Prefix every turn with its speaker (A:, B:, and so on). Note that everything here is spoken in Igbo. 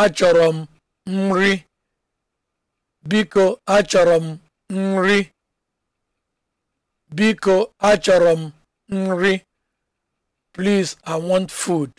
A: achọrọ m nri biko achọrọ m nri biko achọrọ m nri please i want food